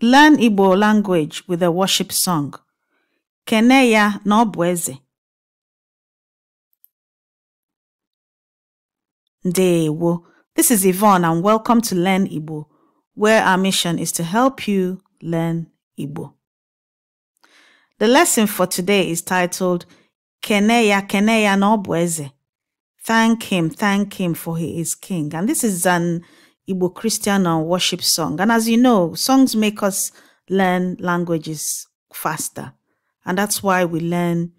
Learn Igbo language with a worship song. Kene ya na Dewo. This is Yvonne and welcome to Learn Igbo, where our mission is to help you learn Igbo. The lesson for today is titled Kene ya Kene ya na Thank him, thank him for he is king. And this is an Igbo Christian or worship song. And as you know, songs make us learn languages faster. And that's why we learn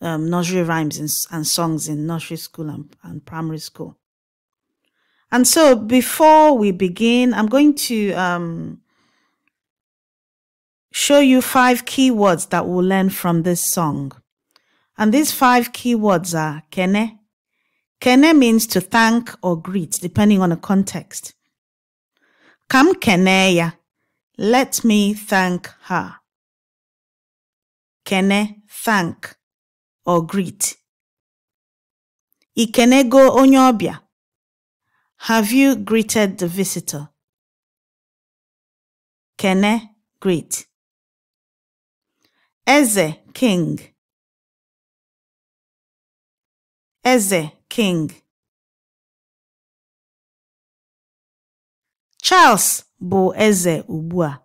um, nursery rhymes and, and, songs in nursery school and, and, primary school. And so before we begin, I'm going to um, show you five keywords that we'll learn from this song. And these five keywords are kene. Kene means to thank or greet, depending on the context. Kam keneya. Let me thank her. Kene, thank or greet. go onyobia. Have you greeted the visitor? Kene, greet. Eze, king. Eze, king. Charles bụ eze ugbu a.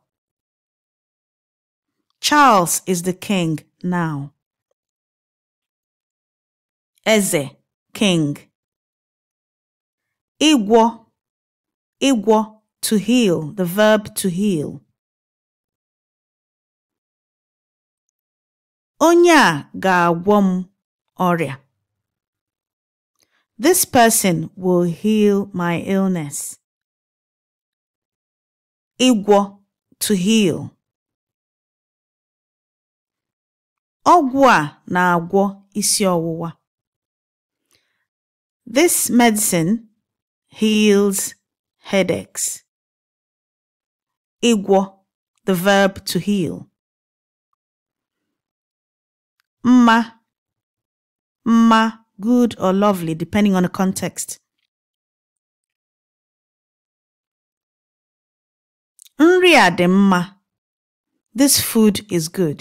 Charles is the king now. Eze, king. Igwo, igwo, to heal, the verb to heal. Onye a ga-agwọ m ọrịa. This person will heal my illness ịgwọ to heal ọgwụ a na-agwọ isi ọwụwa this medicine heals headaches ịgwọ the verb to heal mma mma good or lovely depending on the context Nri a dị mma. This food is good.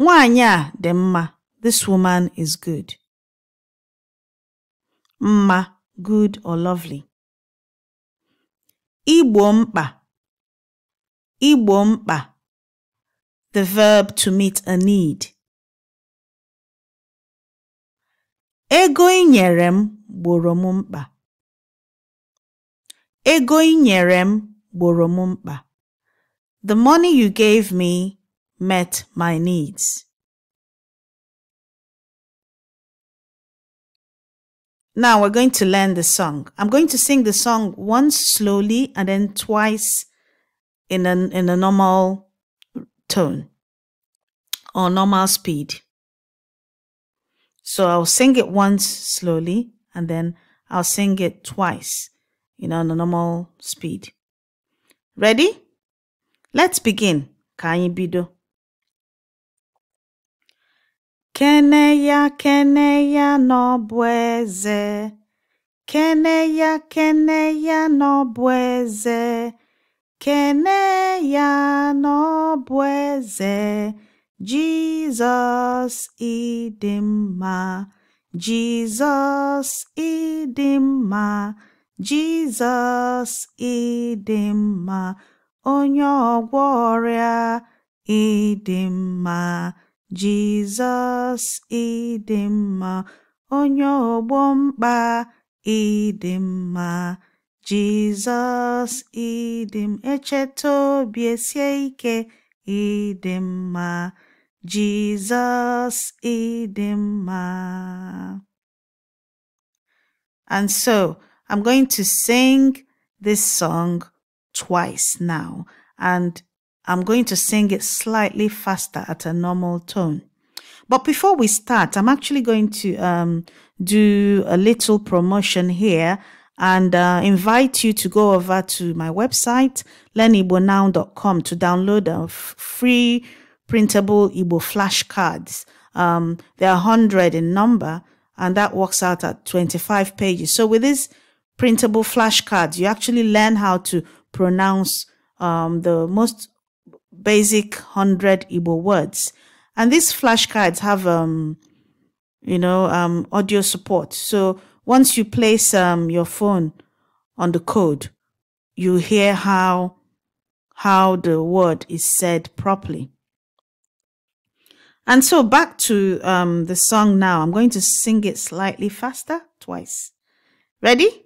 Nwaanyị a dị mma. This woman is good. Mma, good or lovely. Igbo mkpa. Igbo mkpa. The verb to meet a need. Ego i nyere m gboro m mkpa. Ego nyere m gboro m mkpa. The money you gave me met my needs. Now we're going to learn the song. I'm going to sing the song once slowly and then twice in a, in a normal tone or normal speed. So I'll sing it once slowly and then I'll sing it twice. In a normal speed. Ready? Let's begin. Ka anyị bido. Kene ya, kene ya n'ọbụ eze. Kene ya, kene ya n'ọbụ eze. Kene ya n'ọbụ Jizọs ịdị mma onye ọgwọ ọrịa ịdị mma Jizọs ịdị mma onye ọgbọ mkpa ịdị mma Jizọs ịdị m echeta obi esie ike ịdị mma Jizọs ịdị mma And so I'm going to sing this song twice now, and I'm going to sing it slightly faster at a normal tone. But before we start, I'm actually going to um, do a little promotion here and uh, invite you to go over to my website, learnibonow.com, to download a free printable Igbo flashcards. Um, they are 100 in number, and that works out at 25 pages. So with this printable flashcards. You actually learn how to pronounce um, the most basic 100 Igbo words. And these flashcards have, um, you know, um, audio support. So once you place um, your phone on the code, you hear how how the word is said properly. And so back to um, the song now. I'm going to sing it slightly faster twice. Ready?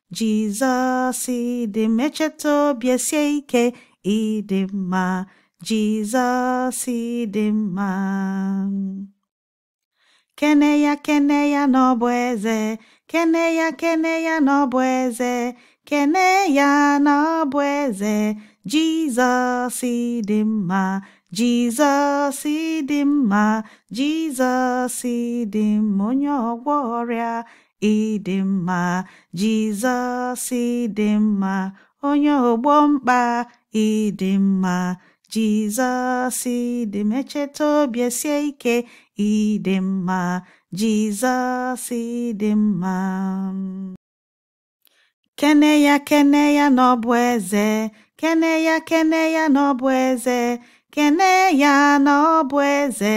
Jesus, dị m echeta obi esie ike ịdị mma Jizọs dị mma kene ya kene ya na ọ bụ eze kene Jesus, kene ya na ọ bụ onye ọgwọ ọrịa ịdị mma Jizọs ịdị mma onye ọgbọ mkpa ịdị mma Jizọs ịdị mma echeta obi esie ike ịdị mma Jizọs ịdị mma kene ya kene ya na ọ bụ eze kene ya kene ya na ọ bụ eze kene ya na ọ bụ eze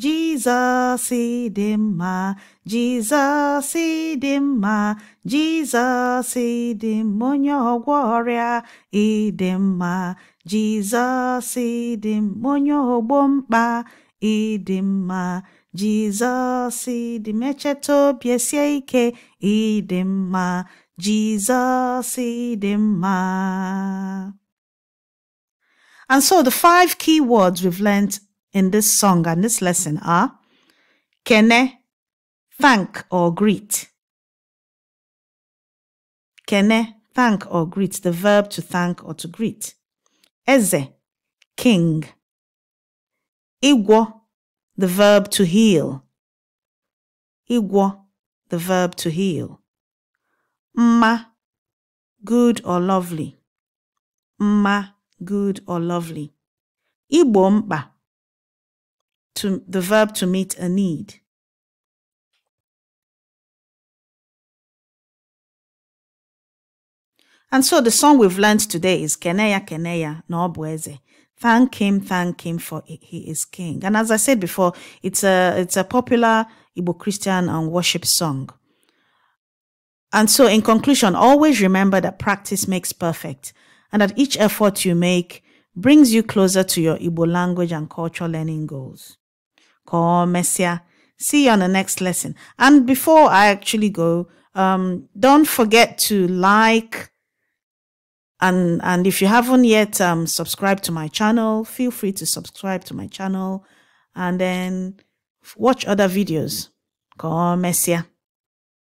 jizọs dị mma jizọs dị mma jizọs dị mma onye ọgwọ ọrịa ịdị mma jizọs dị mma onye ogbo mkpa ịdị mma jizọs dị m obi esie ike ịdị mma jizọs dị mma And so the five key words we've learned in this song and this lesson are kene, thank or greet. Kene, thank or greet, the verb to thank or to greet. Eze, king. Igwo, the verb to heal. Igwo, the verb to heal. Mma, good or lovely. Mma, good, or lovely. Igbo to, the verb to meet a need. And so the song we've learned today is Keneya Keneya Nobueze. Thank him, thank him for he is king. And as I said before, it's a it's a popular Igbo Christian and um, worship song. And so in conclusion, always remember that practice makes perfect and that each effort you make brings you closer to your Igbo language and culture learning goals. Come, Messia. See you on the next lesson. And before I actually go, um, don't forget to like and and if you haven't yet um, subscribed to my channel, feel free to subscribe to my channel and then watch other videos. Come, Messia.